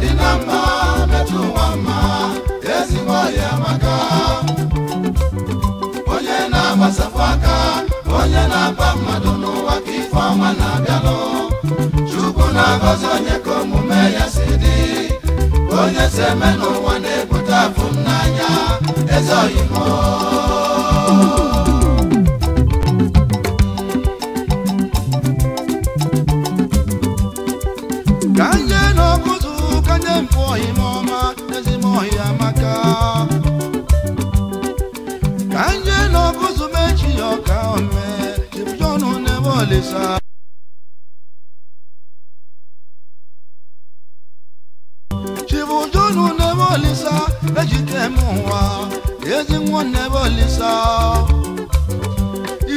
dị na mma metụ ụwa mma ezigbo ọhịa maka onye na-agbasapụ aka onye na-aba mmadụ n'ụwa ka ife ọma na-abịalụ chukwu na-agọzi onye ka omume ya si dị onye si eme n'ụwa na-ebute afụ n'anya eze kanisa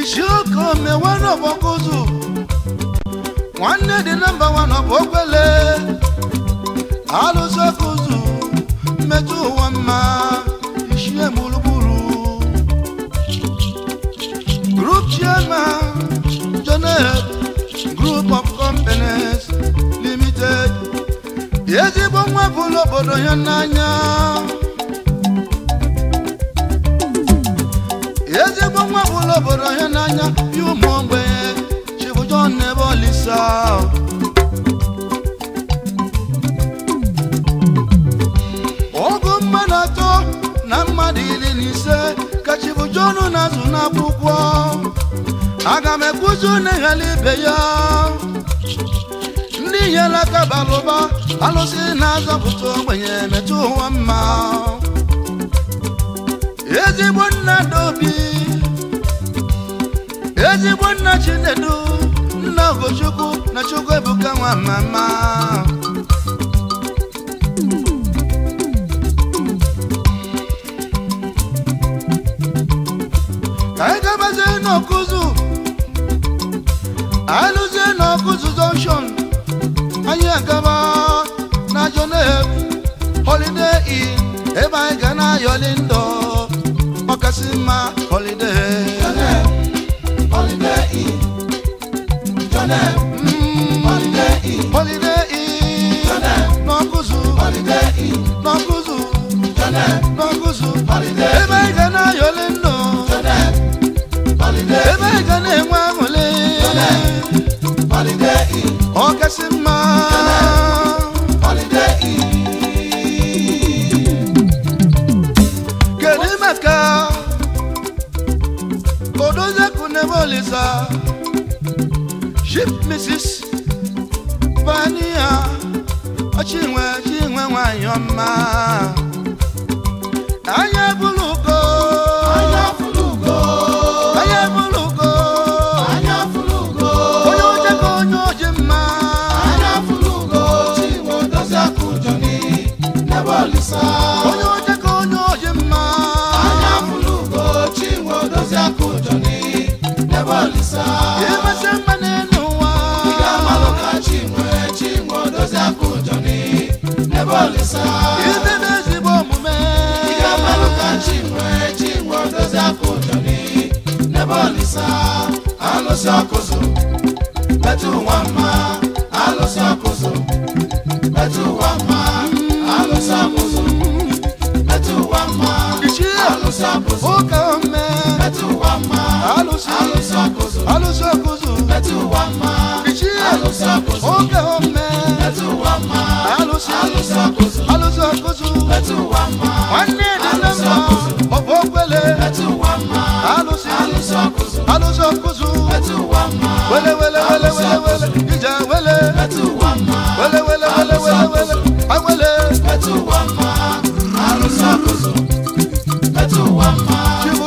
ichioke omewe n'ọbọkụzụ nwanne dị nọmba wan ọbọkwele alụsị ọkụzụ mmetụ ụwa mma ichie gburugburu group chairman Jonel group of companies limited ezigbo nwa bụ n'obodo ya n'anya ezigbo nwa ụlọ obodo na n'anya ya ụmụ mgbe chibụjon n'ebe olisa ọgụ mmadụ atọ na mmadụ iri na ise ka chibụjon na-azụ n'akwụkwọ aga m ekwuzi na ibe ya ndị nyere aka balụba alụsị na-azọpụta ogbenye metụ ụwa mma ezigbo nna n'obi ezigbo nna chinedu nna ogochukwu na chukwu ebuka nwa mama ka anyị gabazie n'ọkụzụ alụzie n'ọkụzụ junction anyị agaba na jonev holiday ebe anyị ga na-ayọli ndọ Asima holiday. Jonem holiday e, Jonem mm. holiday e, Holiday e, Jonem n'ọkụzụ. Holiday in. N'ọkụzụ. Jonem n'ọkụzụ. Holiday e anyọ mma ebe olisa alụsị ọkụzụ metụ ụwa mma alụsị ọkụzụ metụ ụwa mma alụsị ọkụzụ metụ ụwa mma alụsị ọkụzụ metụ ụwa mma alụsị ọkụzụ metụ ụwa mma alụsị ọkụzụ mama. Ṣé mo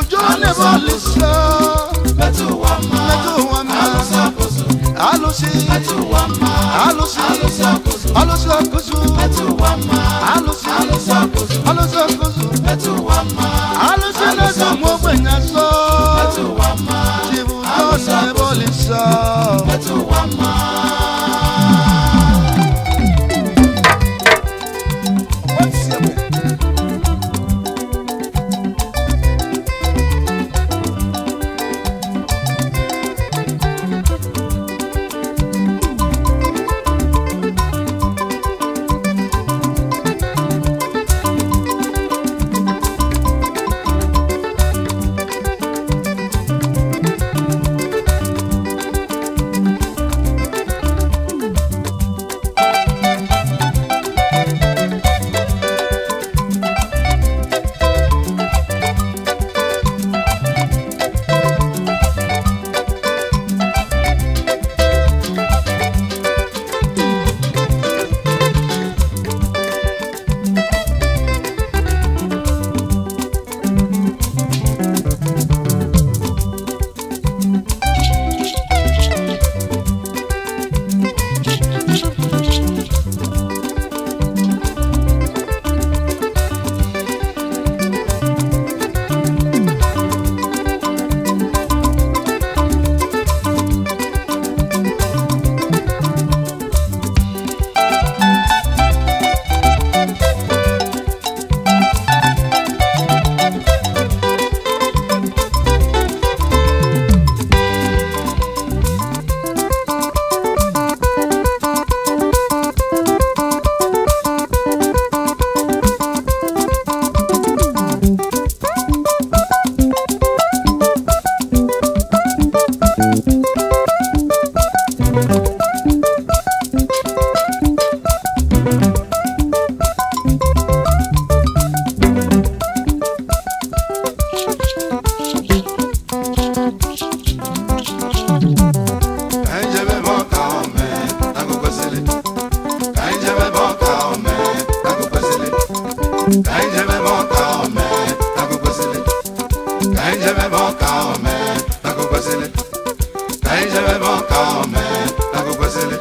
nyemebe ọka ome na agụkwesịrị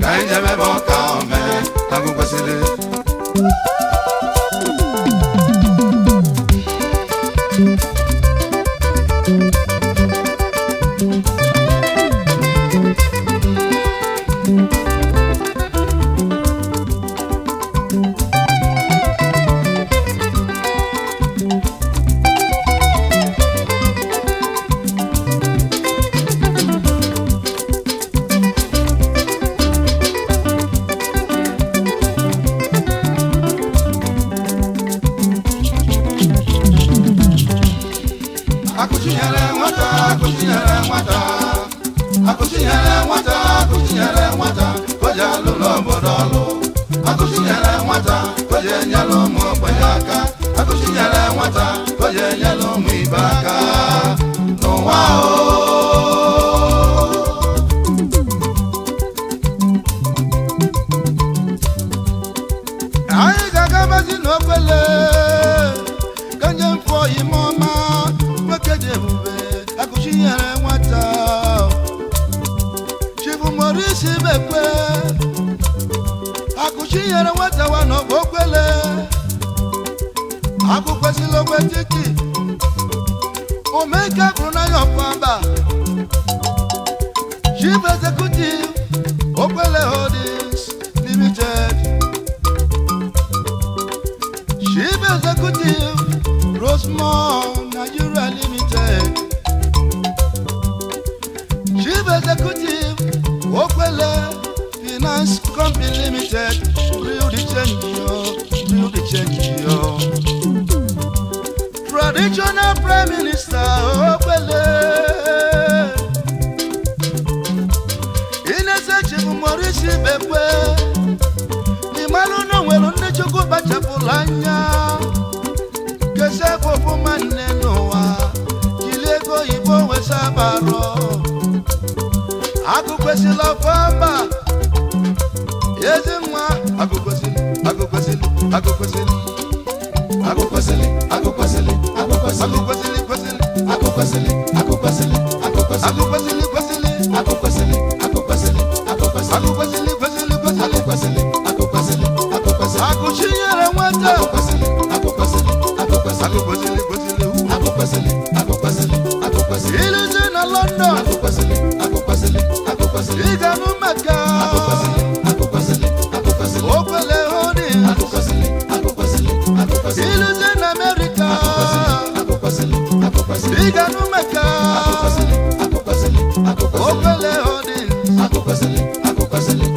ka anyị nyemebe ọka tinyere nwata wa na ogbele akwụkwesịla ogbe titi omeke bụrụ n'anya ọkpamba chief executive ogbele holdings limited chief executive rosemont nigeria limited chief executive ogbele finance company limited change you, still they change you. Traditional Prime Minister Okwele Innocent Chibu Morisi Bekwe Imalu no nwere ndị Chukwu kpachapụrụ anya kesefụ ọfụma nne n'ụwa jiri ego oyibo wesabarọ akụkwesịla ọfọmba ezi agụkwesịrị agụkwesịrị agụkwesịrị agụkwesịrị agụkwesịrị agụkwesịrị agụkwesịrị agụkwesịrị agụkwesịrị agụkwesịrị agụkwesịrị agụkwesịrị agụkwesịrị agụchinyere nwata agụkwesịrị agụkwesịrị agụkwesịrị agụkwesịrị agụkwesịrị a agụkwesịrị ilute na London pásale.